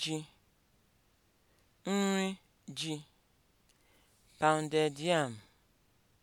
ji, nri ji, pounded yam